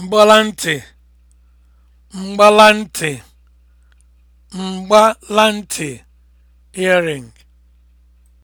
mgbalantị mgbalantị mgbalantị earring